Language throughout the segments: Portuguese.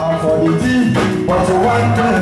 I'm for the team, but one day.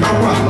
no problem.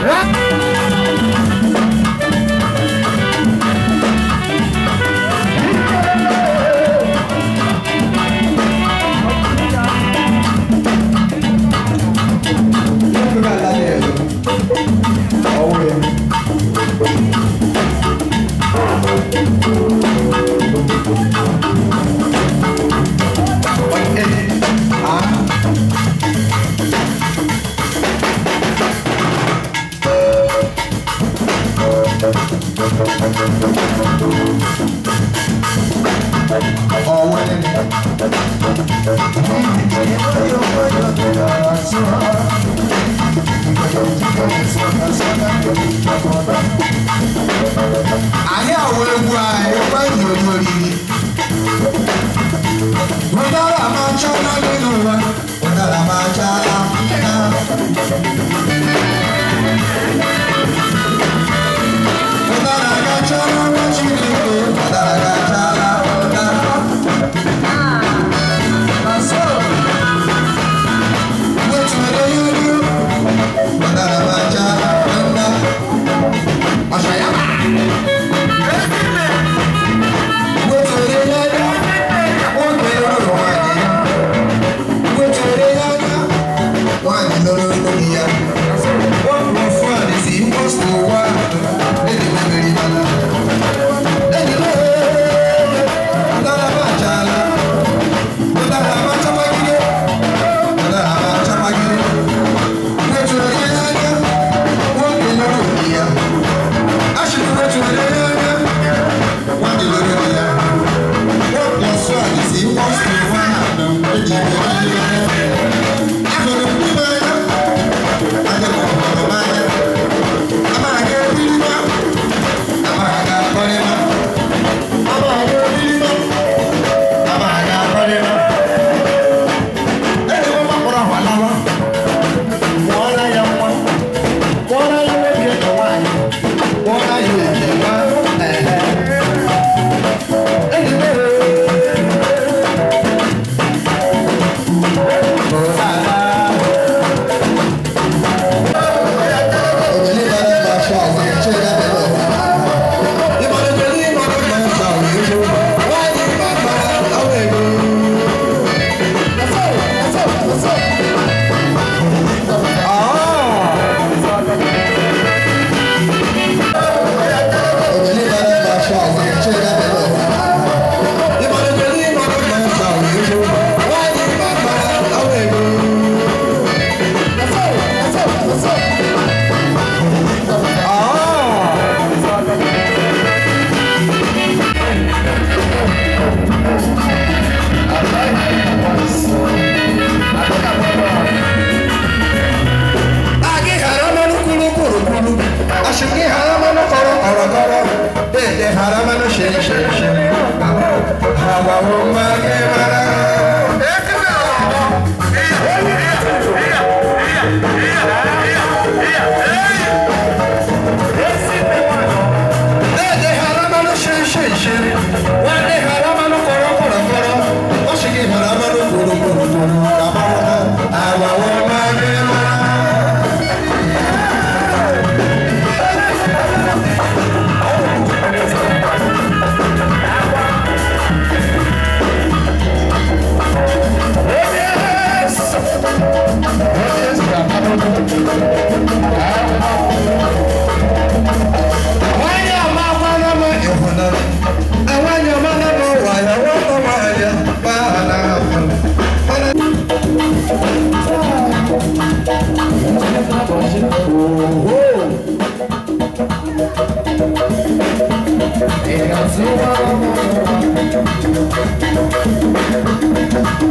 Ah! our Quero sua alma